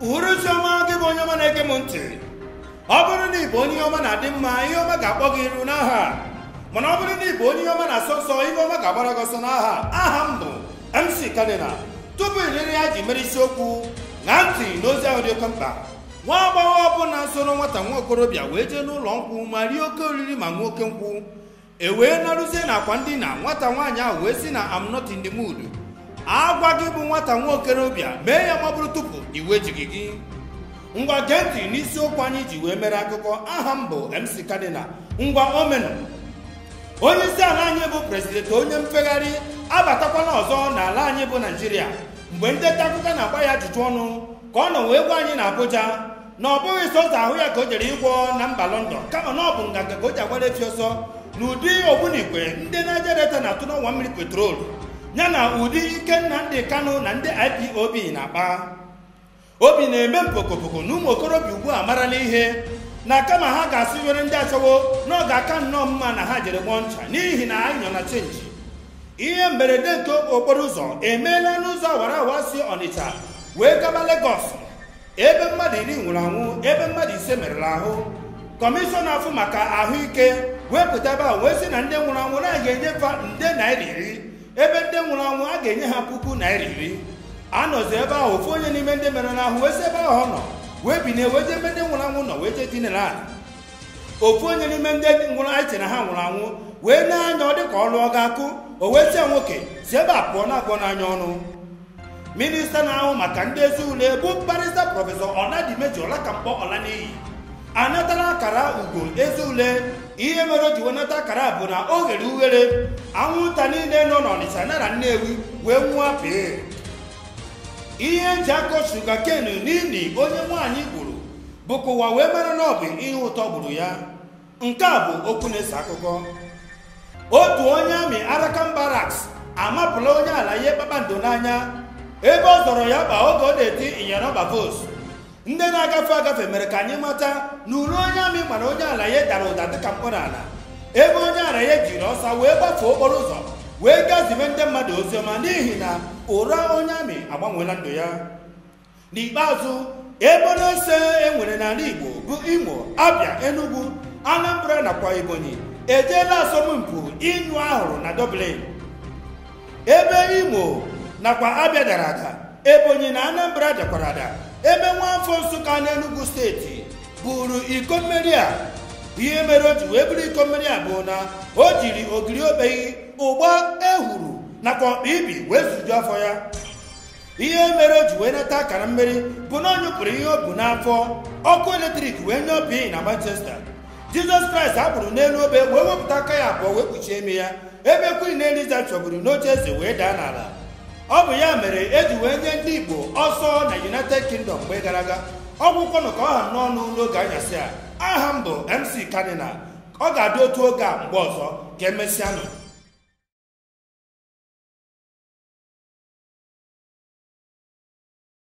uhuruchi gị bụ onye ọma na-ege m ntị ọ bụrụ na ịbụ onye ọma na-adị mma ihe ọma ga-akpọ gị iru n'aha mana ọ bụrụ na ịbụ onye ọma na-asọ nsọ ihe ọma ga-agbara gị ọsọ n'aha aha m bụ mc kadinal tupu iriri ya ji mere isiokwu na ntị n'ozi ahụ dị oke mkpa nwa agbọghọ ọbụla soro nwata nwa okorobịa wee jee n'ụlọ nkwụ ma rie oke oriri ma nwa oke nkwụ e wee narụzie na akwa ndina nwata nwaanyị ahụ wee sị na am de mood agwa gị bụ nwata nwaokorobịa mee ya magbụrụ tupu iwe ejighị gị ngwa gee ntị n'isiokwu anyị ji wee mere akụkọ aha m bụ mc kadinal ngwa omenu onye isi ala anyị bụ prezidenti onye mfegharị abatakwala ọzọ n'ala anyị bụ naijiria mgbe ndị nta akụkọ na-agba ya ajụjụ ọnụ ka ọ nọ wee gwa anyị na abụja na ọ bụghị sọsọ ahụ ya ka o jere ịgwọ na mba lọndọn kama na ọ bụ nganga ka o ji agbara efi ọsọ n'ụdị ogbunigwe ndị naija delta na-atụ n'ọnwa mmiri petrolu ya na ụdị nna ndị kano na ndị ipob na-akpa obi na-eme mpokopoko na ụmụ okorobịa ugbu a marala ihe na kama ha ga-asị were ndị achọwo n'oge aka nnọọ mma na ha jere gbọọ ncha n'ihi na anyị nọ na chenji ihe mberede nke okporo ụzọ emeela n'ụzọ awara awa si ọnịcha wee gaba legọs ebe mmadụ iri nwụrụ anwụ ebe mmadụ ise merụrụ ahụ kọmishọna afụ maka ahụike wepụtaba wee si na ndị nwụrụ anwụ na-aga enyefa nde naira iri ebe ndị nwụrụ anwụ a ga-enye ha puku naira iri anọzi ebe ahụ ofu onye n'ime ndị mere n'ahụ wee si ebe ahụ nọ wee bi wee jee ebe ndị nwụrụ anwụ nọ wee jee dinere ala ofu onye n'ime ndị nwụrụ anyị na ha nwụrụ anwụ wee na-anya ọ dịka ọlụ ọ ga-akụ o wee nwoke si ebe a pụọ na-agwọ n'anya ọnụ minista na-ahụ maka ndị ezi ule bụ mkparịta prọfesọ ọladimeji ọlakamkpọ ọlaniyi anatala akara ugo ezi ule ihe mere o ji wenata akara bụ na o ghere ughere anwụnta niile nọ n'ọnịcha nara nnewi wee nwụọ pee ihe nji akọ shuga kenu n'ili onye nwaanyị gburu bụ ka wee mara na ọ bụ ihe ụtọ gburu ya nke a bụ okwu na-ese akụkọ otu onye amị Arakan Barracks amapụla onye ala ihe kpakpando n'anya ebe ọ zọrọ ya kpa oge ọ na-eti ịnyịnya nọmba vos ndị na-agafe agafe mere ka anyị mata na uru onye amị mana onye ala ya dara ụda dịka mkpọrọ ala ebe onye ala ya jiri ọsa wee gbafee okporo ụzọ wee gazibe ndị mmadụ ọma n'ihi na ụra onye amị agbanweela ndụ ya n'ikpeazụ ebe na-ese enwere n'ala igbo bụ imo abịa enugu anambra nakwa ebonyi ejeela asọmpi ịnyụ ahụrụ na dublin ebe imo nakwa abịa dara ada ebonyi na anambra dakwara ada ebe nwaafọ nsụka n'enugwu steeti buru iko mmeri a ihe mere o ji wee bụrụ iko mmeri a bụ na o jiri ogiri obeghị ụgba ehuru nakwa ọkpa ibi wee zuju afọ ya ihe mere o ji wee nata akara mmeri bụ na onyụpụrụ ihe o bu n'afọ ọkụ eletrik wee nye obi na manchester jizọs kraịst bụrụ n'elu obe wee wepụta aka ya abụọ wee kpuchie ime ya ebe kwiri na eliza chọburu n'oche eze wee daa n'ala ọ bụ ya mere e ji wee nye ndị Igbo ọsọ na United Kingdom mgbe gara aga ọgwụkwọnụ ka ọ ha n'ọnụ n'oge anyasị a aha mbụ bụ MC Kanina ọ ga-adị otu oge a mgbe ọzọ ka emesịanụ